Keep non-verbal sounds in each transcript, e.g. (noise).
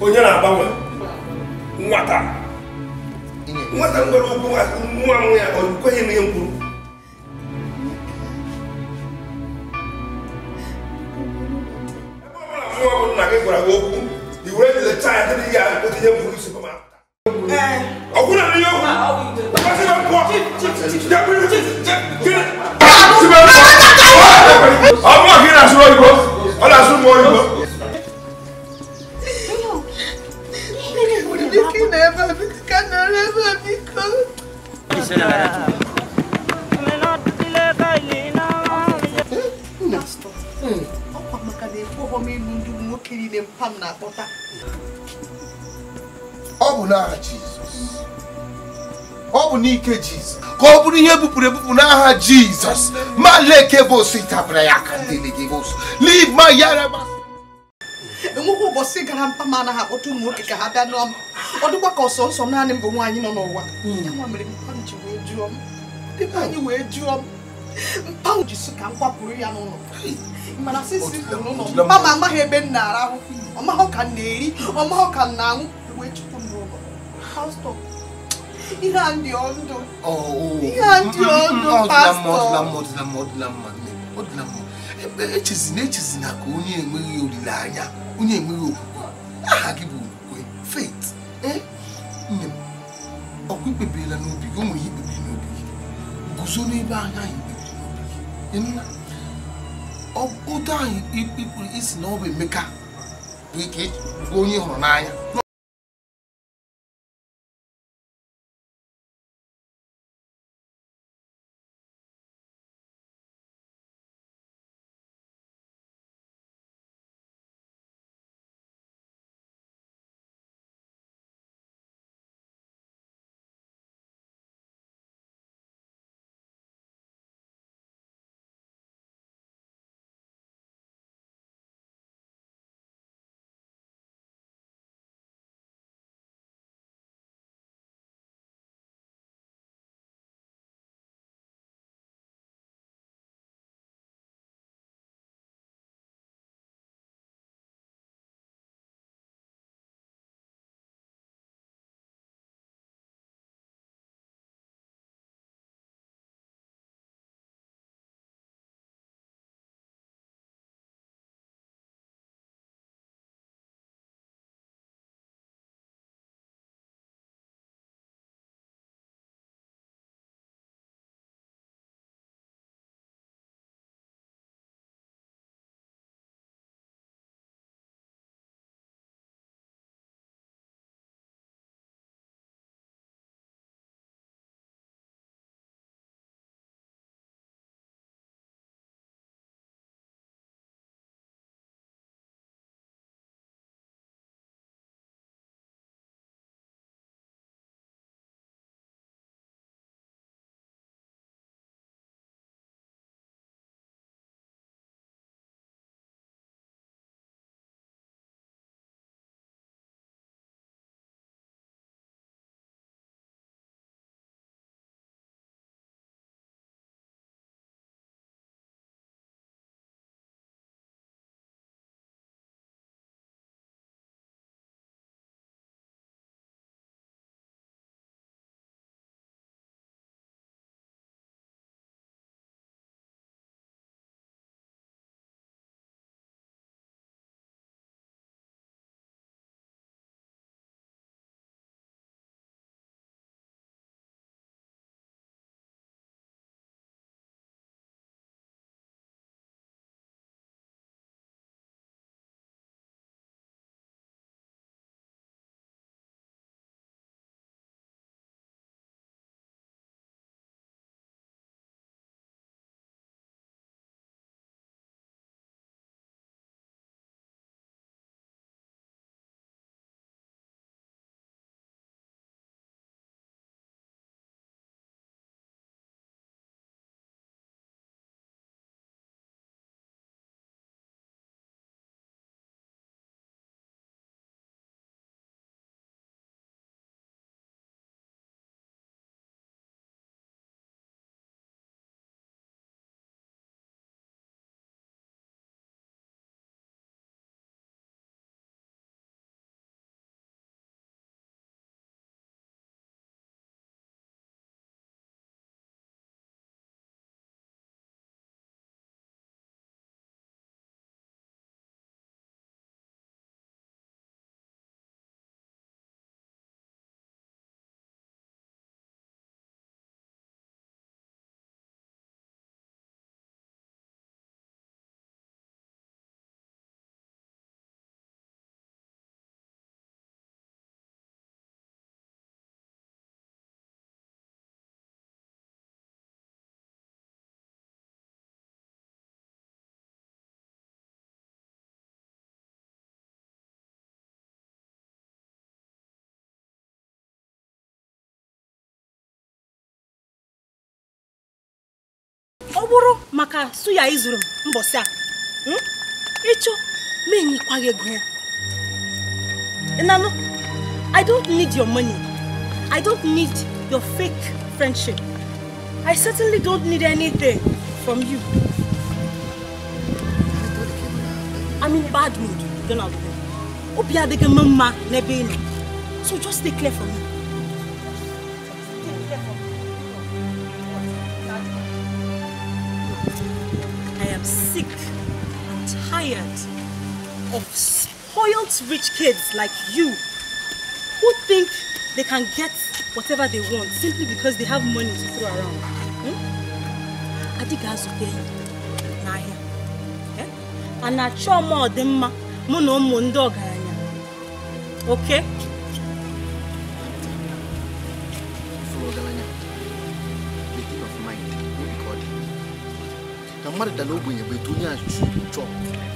onye na-agbanwe nwata nwata nwere ụkwụ nwa nwa ya kweghị m ihe m kwuru ebe ọ bụla nwa bụ nna gị gwara gị okwu i were jide chaya dị ya otinye mkpụrụ isi ọkwụ na ihe okwu ka ọ bụrụ ihe bupụrụ ebupụ n'aha Jizọs ma leke bụ tabara ya aka enweghị ụbọchị gara mpa ma anaghị akpọta ụmụ nwoke ka ha bịa n'ọma ọ dịkwa ka ọsọ nsọ naanị m bụ nwaanyị nọ n'ụwa hmm. anyị wee jụọ m mpa ji sụ ka m kwapụrụ ya n'ụlọ mana sisi n'ụlọ mpa ma amaghị ebe m na-arahụ ọ maghị ka m na-eri ọ maghị ka m na-aṅụ wee chụpụ m n'ụlọ İhan diyordu. Oo. İhan diyordu pastor. Ọdụlamma ọdụlamma ọdụlamma nne ọdụlamma. Echezina echezina ka onye enweghị olileanya onye enweghị okwukwe aha gị bụ okwukwe faith. Nne eh? mm. m ọkwa ikpebirila n'obi gị o nwere ikpebiri n'obi gị guzo n'ebe anya anyị kpebiri n'obi gị. Nna ụdọ anyị ikpuru isi na ọ bụ Emeka bụ onye hụrụ n'anya. bụrụ maka suya ịzụrụ m mbọsị a hmm? ịchọ ma enyekwaghị ego ya ịnanụ i don't need your money i don't need your fake friendship i certainly don't need anything from you i'm in bad mood donald obi adịghị m mma n'ebe ị nọ so just stay clear from me of spoiled rich kids like you who think they can get whatever they want simply because they have money to throw around. Hmm? I think I should pay n'ahịa. A na-achọ ọma ọdịmma mụ na sure oma odimma ndị ọgaranya. Okay? na The dara ogbenye bụ etu onye to chọrọ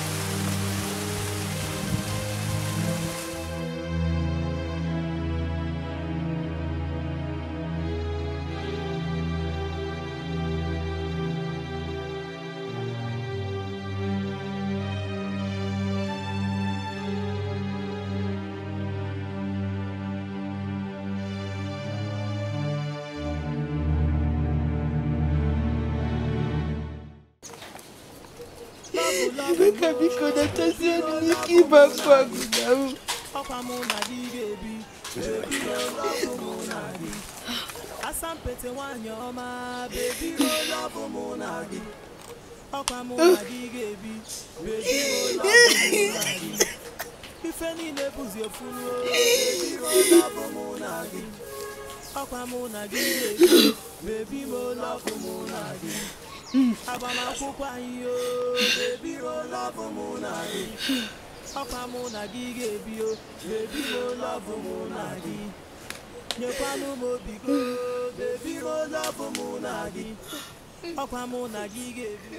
Rebeka biko natasi enu n'ike ịba mkpụ agụga m. Asampete nwanyị ọma, bebi rola bụ mụ na gị. Ọkwa mụ na gị ga-ebi, bebi rola bụ mụ na gị. Ife niile bụzi efu ruo, bebi rola bụ mụ na gị. Ọkwa mụ na gị ga-ebi, bebi rola bụ mụ na gị. agbamakwụkwọ anyị o ebiro lọbụ mụ na gị ọkwa mụ na gị ga-ebi o ebiro lọbụ mụ na gị nyekwanụ m obi go ebiro lọbụ mụ na gị ọkwa mụ na gị ga-ebi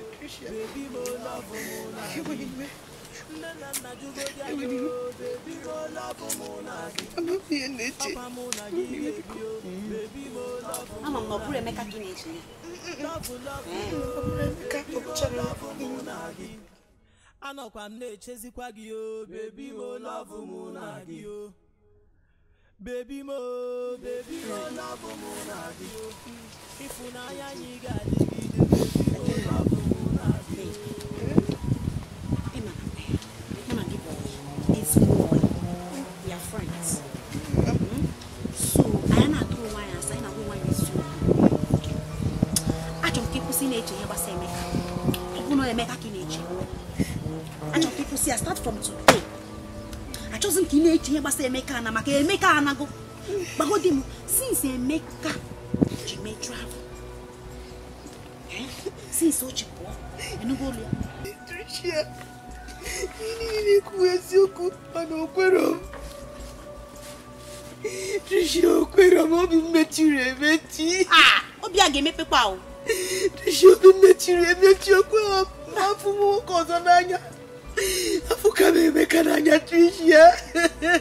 o ebiro lọbụ mụ na gị ama na anọkwa m na-echezikwa gị o m lọbụ mụ na gị o bebi m m mụ na gị o ịfụnanya anyị ga ya start from today achọghị m ka ị na-eche ihe gbasara emeka na maka emeka anago gbagodi m since emeka ji mee travel eh? since o ji pụọ enugo ụlọ ya niile kwuo eziokwu mana okwero m Tricia okwero m obi m mechiri emechi ah, obi a ga-emepekwa ahụ Tricia obi m mechiri emechi okwe m afụ m nwoke ọzọ n'anya afuka m emeka n'anya tricia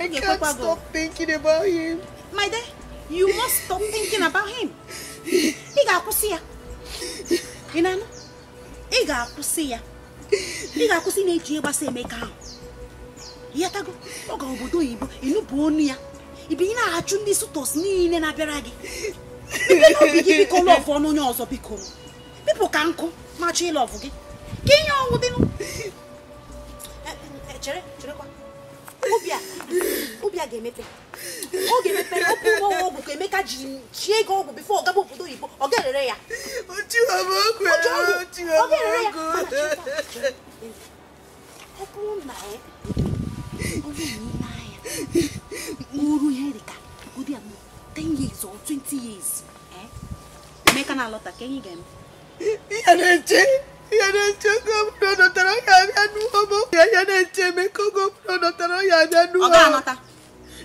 I can't stop thinking about him. My dear, you must stop thinking about him. Ị ga-akwụsị ya. Ị na-anụ? Ị ga-akwụsị ya. Ị ga-akwụsị na-eji ịgbasa Emeka ahụ. ọ oge obodo oyibo ịnụpụ onu ya. Ibi ị na-achụ ndị sutos niile na-abịara gị. Biko n'obi gị biko lọvụ ọnụ onye ọzọ biko. Bipụ ka nkụ ma gị. kínyɛ ɔwɔ bi no kyerɛ kyerɛ kwa obia obia ga-emepe ọ ga-emepe ọkụ ụgbọ ọgwụ ka emeka ji chie gị ọgwụ bifo ọgaba obodo oyibo ọ ga-erere ya ọ ga-erere ya ọ bụrụ na eh, ọ bụrụ na ile uru ihe dị ka ụdị 10 years or 20 years eh, emeka na-alọta ka enyi ga-eme ihe na-eche ihe na-eche oge ọbụla ọ nọtara ya abịa n'ụwa ma ya ya na-eche eme ka oge ọbụla ọ nọtara ya abịa n'ụwa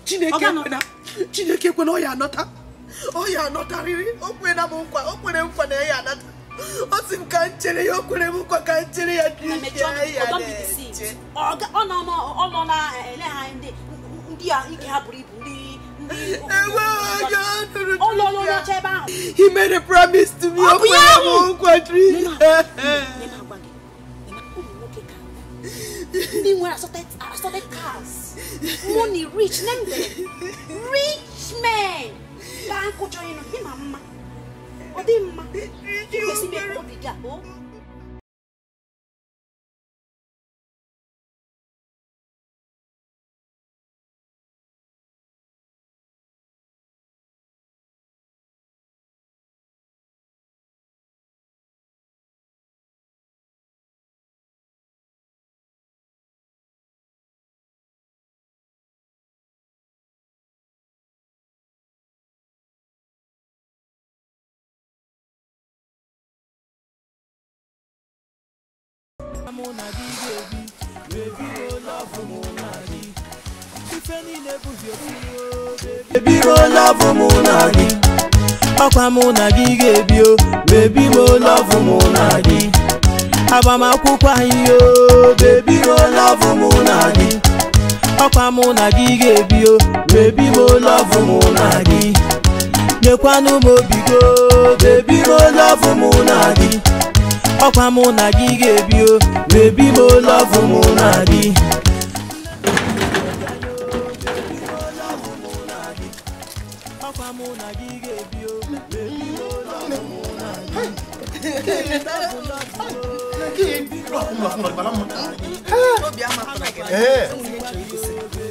Chineke kwena Chineke kwena anọta anọtarịrị o kwena m nkwa o kwere nkwa na ya anata ọ sị m ka m chere ya o kwere m nkwa ka m chere ya nọ na He made a promise to me. Oh, yeah, oh, country. Meanwhile, I started, I started cars, money, rich, name them, rich men. Bank join him, mama. Oh, they, mama. You see me, oh, mụ na gị ga-ebi wee mụ na ọkwa mụ na gị ebi wee mụ na gị agbamakwụkwọ anyị o m oh, oh, mụ na gị ọkwa mụ na gị ga-ebi o wee bido mụ na gị nyekwanụ m obigo m oh, mụ na gị ọkwa mụ na gị ga-ebi o lọvụ mụ na gị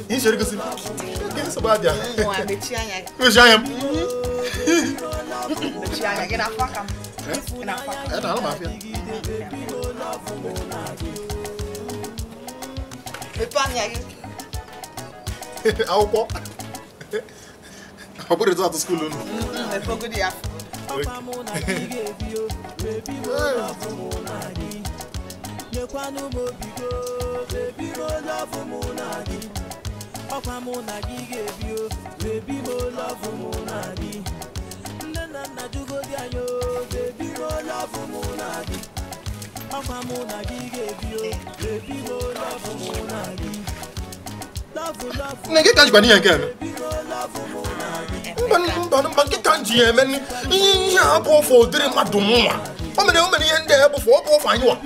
enxerga assim. Quem é Sabadia? Não, ẹ̀ẹ́dà alábàáfíà. akwụkwọ ọ bụrụ etu atụ skuulu unu nyekwanụ m obi go bebiri olu ọfụ mụ na gị ọkwa mụ na gị ga-ebi o bebi m olu ọfụ mụ na gị nne na nna jugodi anya o bebi love Munagi. Papa Munagi gave oh, you, baby go love Munagi. Nege tanji bani yenge me. Mban mban mban ki tanji yenge ni. Iya abo fo dire madumu wa. Omene omene yende abo fo abo fa yiwa.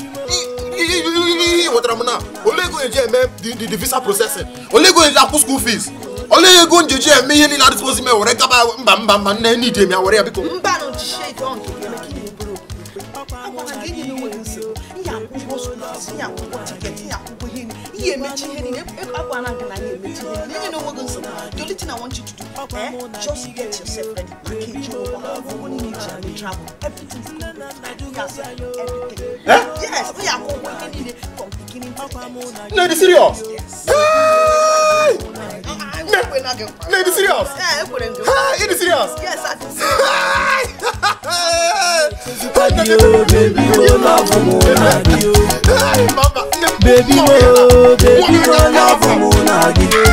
Wotara muna. Ole go yenge me the the visa processing. Ole go yenge apu school fees. Ole go yenge yenge me yeni la disposi me wore kaba mba mba mba ne ni demi awore abiko. Mba no jishe don ki yenge ki agwa na ga-enye enweghị nsị ihe akwụ ụgwọ ihe akwụ tiketi ihe akwụ ụgwọ ihe ihe emechi ihe niile agwa na gị na ya emechi ihe niile enye na onweghị nsị the only thing I want you to do eh just get yourself ready package your ụgbọ akwụkwọ niile travel everything is complete gas everything yes ihe akwụ ụgwọ ihe niile from beginning to end. Lady serious? Yes. Lady serious? Yeah, it is serious. Yes, I do. (laughs) Baby, oh, baby, oh, lọ́ọ̀fù mo nàgí o. Baby, oh, baby, oh, lọ́ọ̀fù mo nàgí o.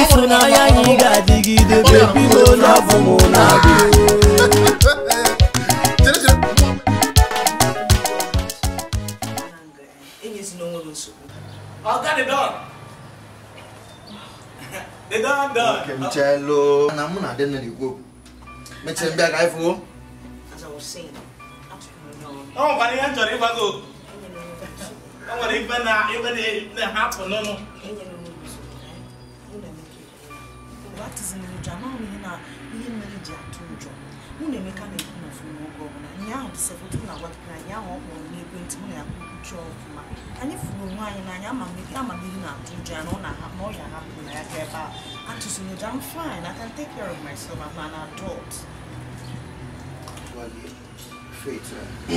Ìsúnáyà yìí gàdígídé, baby, oh, lọ́ọ̀fù mo nàgí o. Mechelo, na mụ na-adị n'igwe. Mechelo mbịa ka anyị fụọ. As I was saying, ọ nwekwara ihe m chọrọ o nwere ibe na-ahapụ na Emeka na-ekwu na ọfụma oge na agwapụta anyị ahụ ọ na ya kwukwuchi ọfụma anyị n'anya ama na-atụ ọ na-ahapụ na ọ na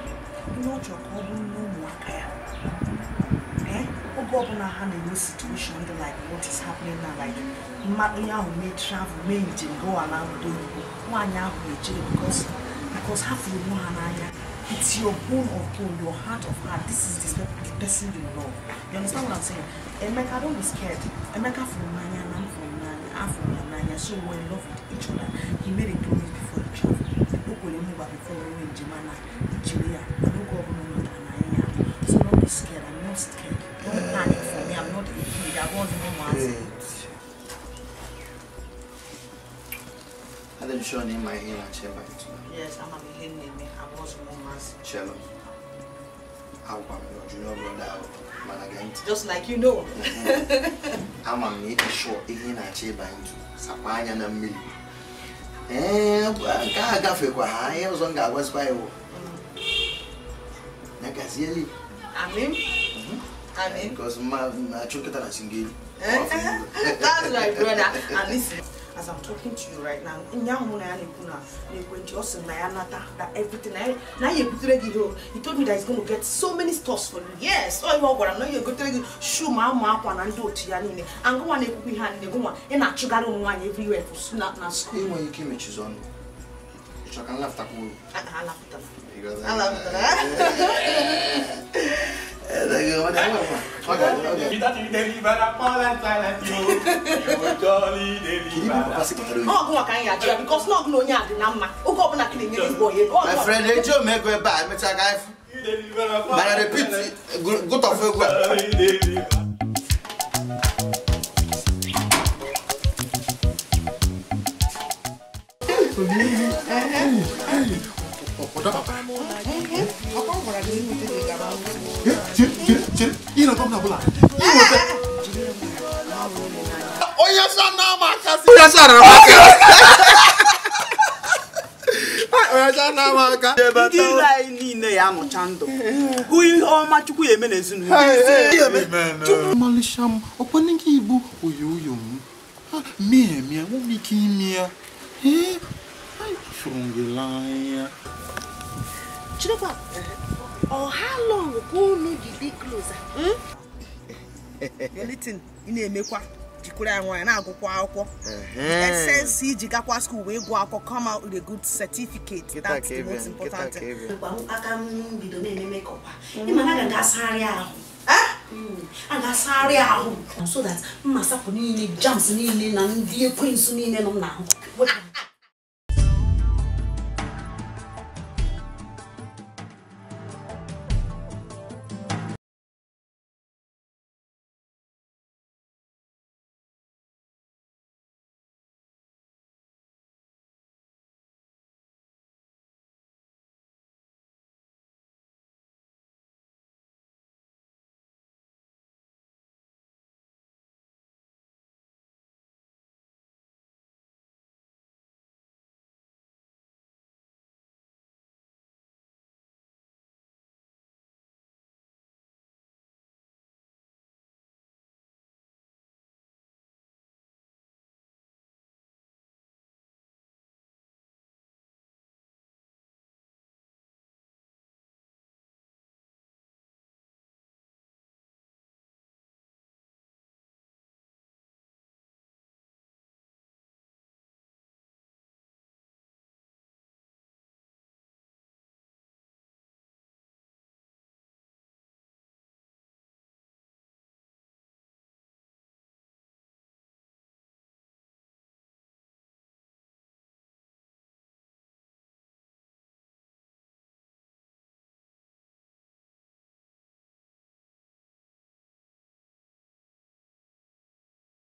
ihe ọ chọrọ ka ọ bụrụ nne ụmụaka ya oge ọbụla ha na-enwe situation dị like what is happening now like mmadụ onye ahụ mee travel mee njem gawa na obodo oyibo nwaanyị ahụ na-echere because because ha fụrụ onwe ha n'anya it's your bone of bone your heart of heart this is the, the person you love you understand what I'm saying Emeka don't be scared Emeka fụrụ n'anya na m fụrụ n'anya afụrụ ya n'anya so we love with each other he made a promise before he travel nwere mgbara following Não Nigeria. I don't go over no Nigerian. So Não be scared. I'm not scared. Don't panic for me. I'm not a kid. I was no man. Ada nishoni name my name and chamber Yes, I'm a name. I was no man. Chelo. Agwa m your junior brother mana gee ntị. Just like you know. Mm-hmm. Ama m na ịdị sure Não na-achọ ịba ntụ sakwa anya na mmiri. ee nke a gafekwa ha ihe ọzọ m ga-agwazikwa iwu ya gazieli amin amin because ma achụ kịta na singeli that's my brother and this as I'm talking to you right now in your mind, you're na to that everything Now you ebutere gị ihe he told me that he's going to get so many stores for you yes Oh ọ ihe ọ gwara m na ya egotere gị shu ma ama akwa na ndị everywhere. ya niile angụnwa na-ekwukwa ihe a niile gụnwa ị na-achụgharị ụmụ nwaanyị everywhere for you. na school enweghị ike imechizi ọnụ ịchọ ka nlaftakwuo alapụtara alapụtara ọgụ maka anyị ajụ ya bikos na onye a dị na mma oge ọbụla kiri nye igbo ya my friend ome ego ebe a emecha ga mana repeat gụtọfụ egwu a kira sara maka. Ọyọcha na amaka. Ndị ire anyị niile ya amụcha ndụ. Ihe ọma Chukwu ya eme n'ezinụlọ. Igbo oyo oyo m. Mie mie nwere ike ime ya. Ee, ifuru gị ka unu dị dị kloza? Hmm? ị na-emekwa. jikwere ya nwaanyị na-agụkwa akwụkwọ esensi iji gakwa skuul wee gụọ akwụkwọ kọma out good certificate aka ahụ hmm, a ga-asagharị ahụ so that mmasapụ niile jams na ndị